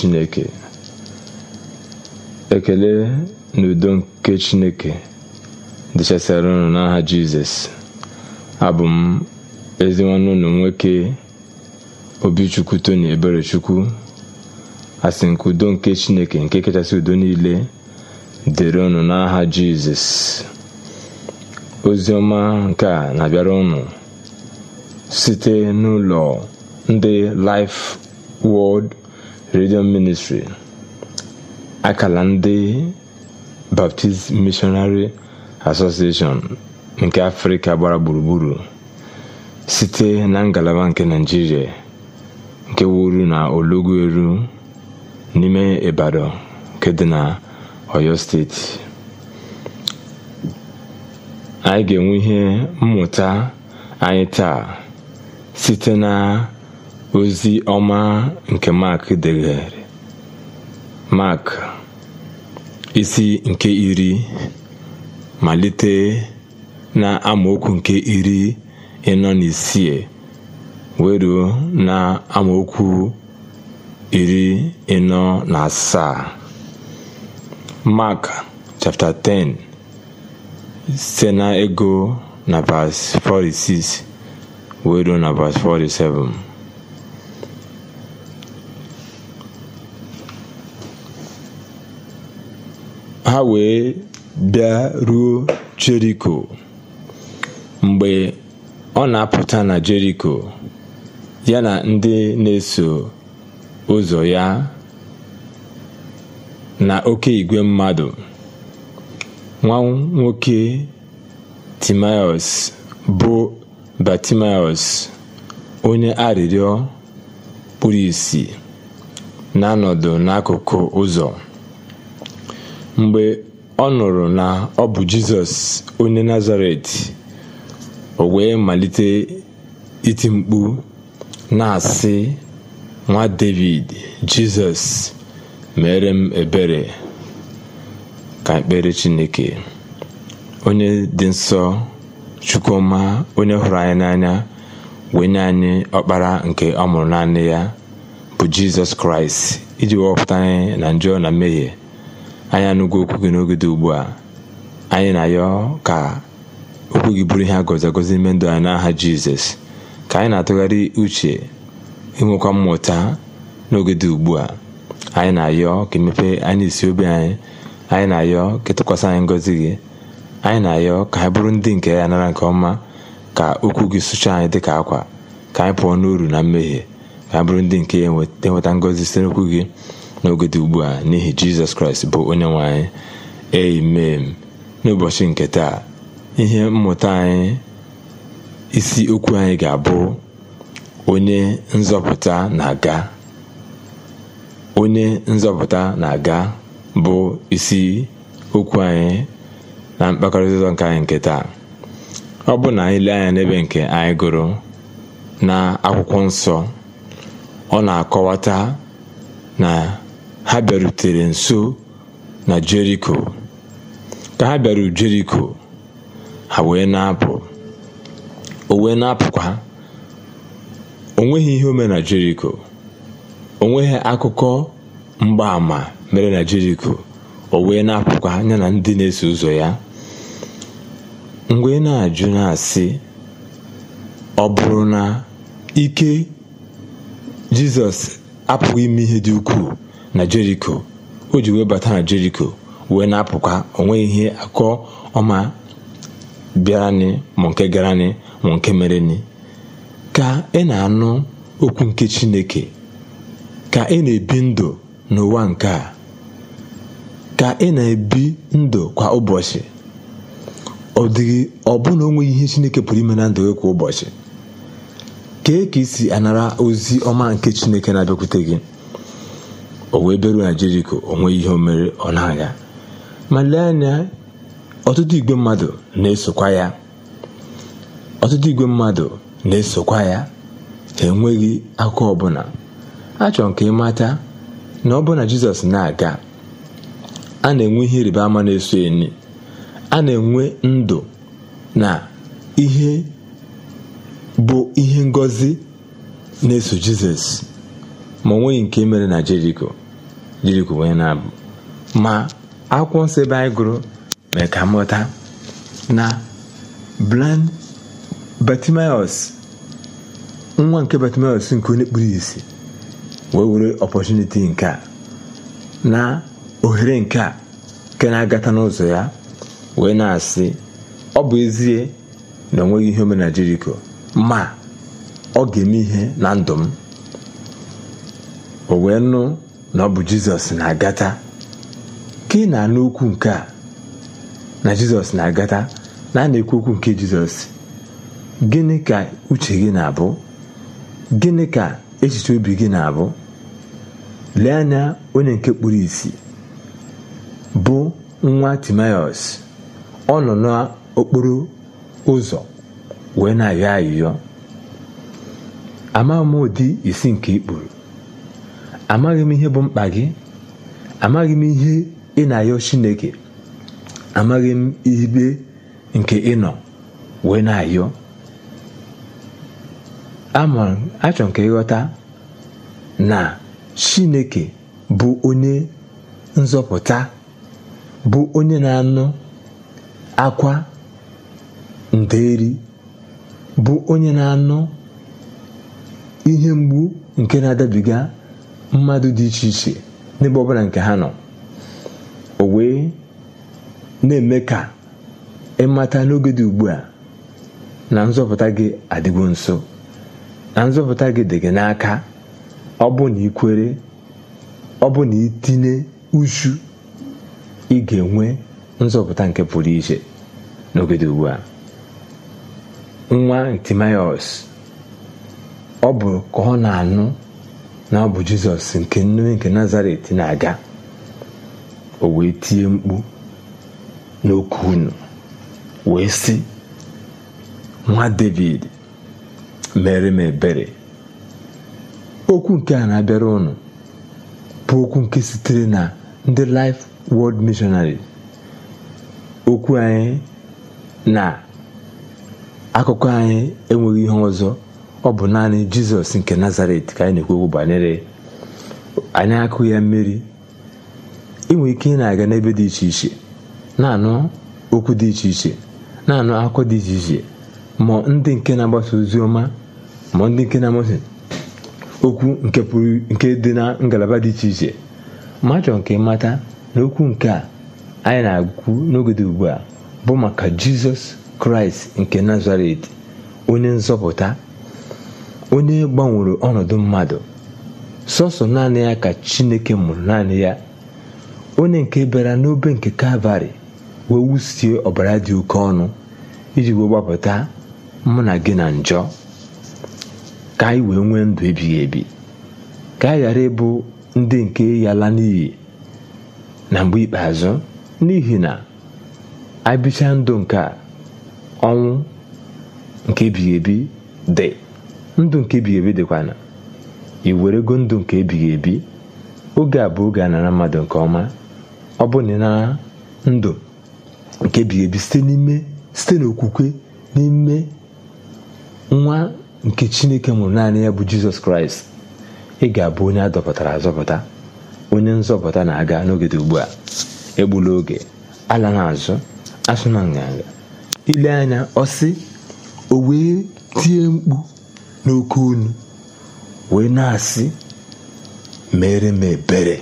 chineke ekele n'udo nke chineke dịchasịara unu n'aha jizọs abụ m ezi nwanne unu nwoke obichukwu tony eberechukwu asị nke udo nke chineke nke kachasị udo niile dịrị unu n'aha jizọs ozi ọma nke a na-abịara unu site n'ụlọ ndị Life Word redio ministri akala ndị baptist missionary association nke afrịka gbara gburugburu site na ngalaba nke naijiria nke wuru na eru n'ime ibadan nke dị na oyo steeti anyị ga-enwe ihe mmụta anyị taa site na ozi ọma nke Mark degere Mark isi nke iri malite na amaokwu nke iri ịnọ na isii weruo na amaokwu iri ịnọ na asaa Mak chapter 10 site na ego na verse 46 weruo na 47 ha wee bịa ruo Jeriko mgbe ọ na-apụta na Jeriko ya na ndị na-eso ụzọ ya na oke igwe mmadụ nwa nwoke Timaeus bụ batimaeus onye arịrịọ kpuru ìsì na-anọdụ n'akụkụ ụzọ Mgbe ọ nụrụ na ọ bụ Jizọs onye Nazaret, o wee malite iti mkpu na-asị, “Nwa Devid, Jizọs, mere m ebere!” Ka ekpere Chineke. Onye dị nsọ, Chukwuma, onye hụrụ anyị n'anya, wee nye anyị ọkpara nke ọ mụrụ naanị ya, bụ Jizọs Kraịst iji wepụta anyị na njọ na mmehie anyị anụgo okwu gị n'oge dị ugbu a anyị na-ayọ ka okwu gị bụrụ ihe a agọzi ime ndụ anyị n'aha jizọs ka anyị na-atụgharị uche inwekwa mmụta n'oge dị ugbu a anyị na-ayọ ka emepee anyị isi obi anyị anyị na-ayọ ka ịtụkwasị anyị ngọzi gị anyị na-ayọ ka anyị bụrụ ndị nke ya nara nke ọma ka okwu gị sụchaa anyị dịka akwa ka anyị pụọ n'uru na mmehie ka anyị bụrụ ndị nke ya enweta ngọzi site n'okwu gị n'oge ugbu a n'ihi jizọs kraịst bụ onye nwe anyị amen n'ụbọchị nke taa ihe mmụta anyị isi okwu anyị ga-abụ onye nzọpụta na-aga onye nzọpụta na-aga bụ isi okwu anyị na mkpakọrịta ụzọ nke anyị nke taa ọ bụ na anyị lee anya n'ebe nke anyị gụrụ na akwụkwọ nsọ ọ na-akọwata na ha bịarutere nso na jeriko ka ha bịaru jeriko ha wee na-apụ o wee na-apụkwa o onweghị ihe o mere na jeriko nweghị akụkọ mgbaàmà mere na jeriko o wee na-apụkwa anya na ndị na-eso ụzọ ya mgbe na-ajụ na-asị ọ bụrụ na ike jizọs apụghị ime ihe dị ukwuu na jeriko o ji wee bata na jeriko wee na-apụkwa onwe ihe akọ ọma bịaranị ma nke garanị ma nke merenị ka ị e na-anụ okwu nke chineke ka ị e na-ebi ndụ n'ụwa nke a ka ị e na-ebi ndụ kwa ụbọchị ọ dịghị ọbụna onweghị ihe chineke pụrụ ime na ndụ gị kwa ụbọchị kee ka i si anara ozi ọma nke chineke na-abịakwute gị o wee beru na jeriko onwe ihe o mere ọ na-aga ma lee anya ọtụtụ igwe mmadụ na-esokwa ya ya ha enweghị akụkọ ọbụla achọrọ ka ịmata na ọbụna jizọs na-aga a na-enwe ihe ịrịba ama na-eso enyi a na-enwe ndụ na ihe bụ ihe ngọzi na-eso jizọs ma ọ nke e mere na jeriko jeriko wee na-abụ ma akwụkwọ nsọ ebe anyị gụrụ mee ka na bland batimios nwa nke batimios nke onye kpuru isi wee were ọpọchuniti nke a na ohere nke a nke na-agata n'ụzọ ya wee na-asị ọ bụ ezie na ọ ihe ome na ma ọ ga-eme ihe na ndụ m o wee nụ na ọ bụ jizọs na-agata ka ị na-anụ okwu nke a na jizọs na-agata na a na-ekwu okwu nke jizọs gịnị ka uche gị na-abụ gịnị ka echiche obi gị na-abụ lee anya onye nke kpuru isi bụ nwa timaios ọ nọ n'okporo ụzọ wee na-ayọ ayịyọ amaghị m ụdị isi nke ikpuru amaghị m ihe bụ mkpa gị amaghị m ihe ị na-ayọ chineke amaghị m ibe nke ị nọ wee na-ayọ achọ nke ịghọta na chineke bụ onye nzọpụta bụ onye na-anụ akwa nderi bụ onye na-anụ ihe mgbu nke na-adabiga mmadụ dị iche iche n'ebe ọbụla nke ha nọ o wee na-eme ka ịmata n'oge dị ugbu a na nzọpụta gị adịgo nso na nzọpụta gị dị gị n'aka ọ bụ na ikwere ọ bụ na itinye uchu ị ga-enwe nzọpụta nke pụrụ iche n'oge dị ugbu a nwa timaios ọ bụ ka ọ na-anụ na bụ jizọs nke nne nke nazaret na-aga o wee tie mkpu n'okwu unu wee sị nwa david mere m okwu nke a na-abịara ụnụ bụ okwu nke sitere na ndị life world missionary okwu anyị na akụkọ anyị enweghị ihe ọzọ ọ bụ naanị jizọs nke nazaret ka anyị na-ekwu okwu banyere anyị akụ ya mmiri inwe ike ị na-aga n'ebe dị iche iche na-anụ okwu dị iche iche na-anụ akụkọ dị iche iche ma ndị nke na-agbasa ozi ọma ma ndị nke na-agbasa okwu nke pụrụ nke dị na ngalaba dị iche iche ma achọrọ nke mata na okwu nke a anyị na-agụ n'oge dị ugbu a bụ maka jizọs kraịst nke nazaret onye nzọpụta onye gbanwere ọnọdụ mmadụ sọsọ naanị ya ka chineke mụrụ naanị ya onye nke bịara n'obe nke kalvarị wee wusie ọbara dị oke ọnụ iji wee gbapụta mụ na gị na njọ ka anyị wee nwee ndụ ebighị ebi ka anyị ghara ịbụ ndị nke yala n'iyi na mgbe ikpeazụ n'ihi na abịcha ndụ nke ọnwụ nke ebighị ebi dị ndụ nke ebighị ebi dịkwana ị werego ndụ nke ebighị ebi oge a bụ oge a nara mmadụ nke ọma ọ bụ na ịnara ndụ nke ebighị ebi site n'ime site n'okwukwe n'ime nwa nke chineke mụrụ naanị ya bụ jizọs kraịst ị ga-abụ onye adọpụtara azọpụta onye nzọpụta na-aga n'oge dị ugbu a egbula oge ala n'azụ asụ na nganga ile anya ọ sị o wee tie mkpu n'oke unu wee na-asị mere m ebere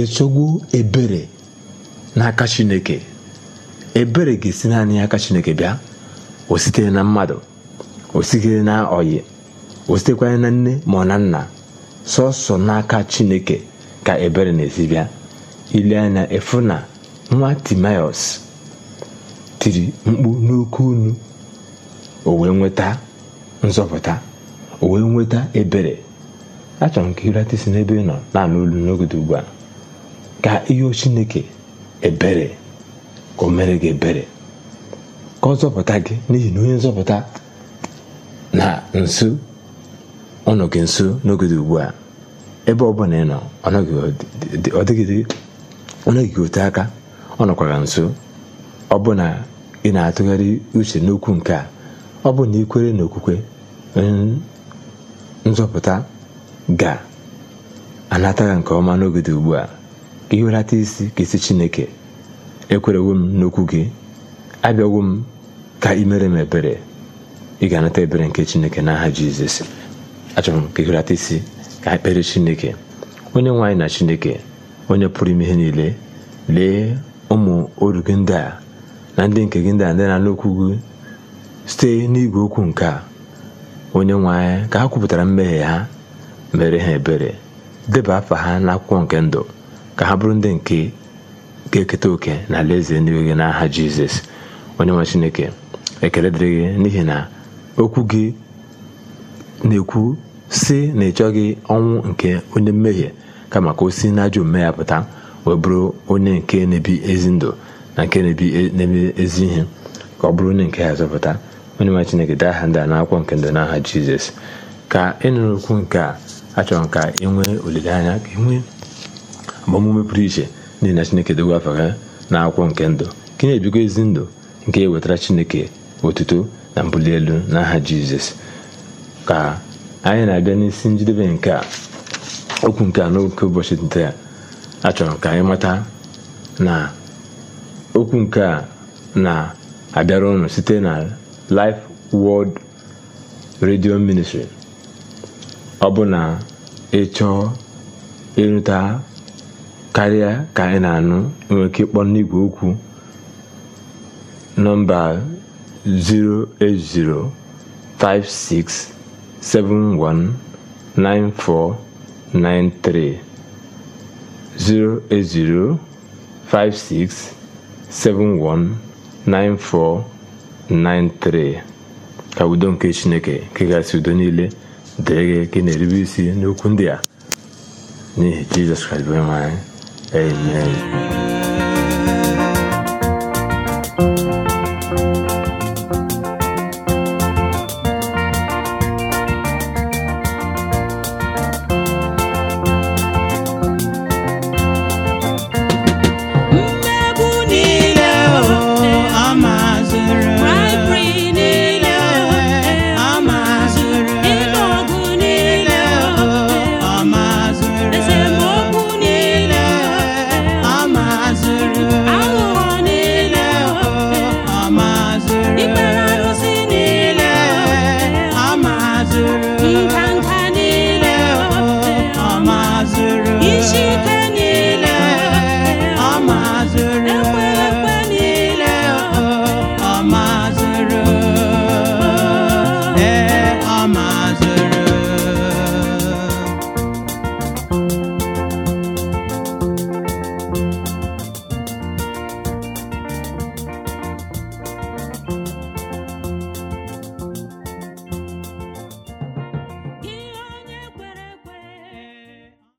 echọgbu ebere n'aka chineke ebere ga-esi naanị aka chineke bịa o sitere na mmadụ o sitere na ọyị o sitekwanye na nne ma ọ na nna sọsọ n'aka chineke ka ebere na-esi bịa ile anya efu na nwa timaios tiri mkpu n'oke unu o wee nweta nzọpụta o wee nweta ebere achọrọ m ka ịrata n'ebe ị nọ na-anụ olu n'ogede ugbu a ka ihe chineke ebere ka o mere gị ebere ka ọ zọpụta gị n'ihi na onye nzọpụta na nso ọ gị nso n'ogodo ugbu a ebe ọ bụla ị nọ ọ ote aka ọ nọkwara nso ọ bụ na ị na-atụgharị uche n'okwu nke a ọ bụ na ikwere na okwukwe nzọpụta ga-anata ya nke ọma n'oge dị ugbu a ka ihelata isi ka isi Chineke ekwerewo m n'okwu gị abịawo m ka ị mere m ebere ị ga-anata ebere nke Chineke n'aha Jizọs achọrọ m ka ihelata isi ka ekpere Chineke onye nwe anyị na Chineke onye pụrụ ime ihe niile lee ụmụ oru gị ndị a na ndị nke gị ndị a ndị na-anụ okwu gị site n'igwe okwu nke a onye nwe ka ha kwupụtara mmehie ha mere ha ebere deba afa ha n'akwụkwọ nke ndụ ka ha bụrụ ndị nke ga-eketa oke na alaeze eluigwe gị n'aha jizọs onye nwe chineke ekele dịrị gị n'ihi na okwu gị na-ekwu si na ịchọghị ọnwụ nke onye mmehie kama ka o si n'ajọ omume ya pụta wee bụrụ onye nke na-ebi ezi ndụ na nke na-ebi ezi ihe ka ọ bụrụ onye nke ya zọpụta onyenwe chineke dee aha ndị a n'akwụkwọ nke ndụ n'aha jizọs ka ịnụrụ e okwu nke a achọrọ m ka ị nwee olileanya ka ị nwee agbamume pụrụ iche n'ihi na chineke dogo afa na akwụkwọ nke ndụ ka na-ebigo ezi ndụ nke e wetara chineke otuto na mbuli elu n'aha jizọs ka anyị na-abịa n'isi njedebe nke a okwu nke a noke ụbọchị nte a achọrọ ka anyị mata na okwu nke a na-abịara ụnụ site na Life world Radio Ministry. ọ bụ na ị chọọ ịnụta karịa ka ị na-anụ nwere ike ịkpọ n'igwe okwu nọmba 08056719493 08056719493 93 ka udo nke chineke nke udo niile dịrị gị ka ị na-erube isi n'okwu ndị a n'ihi jizọs kraịst bụ onye nwe amen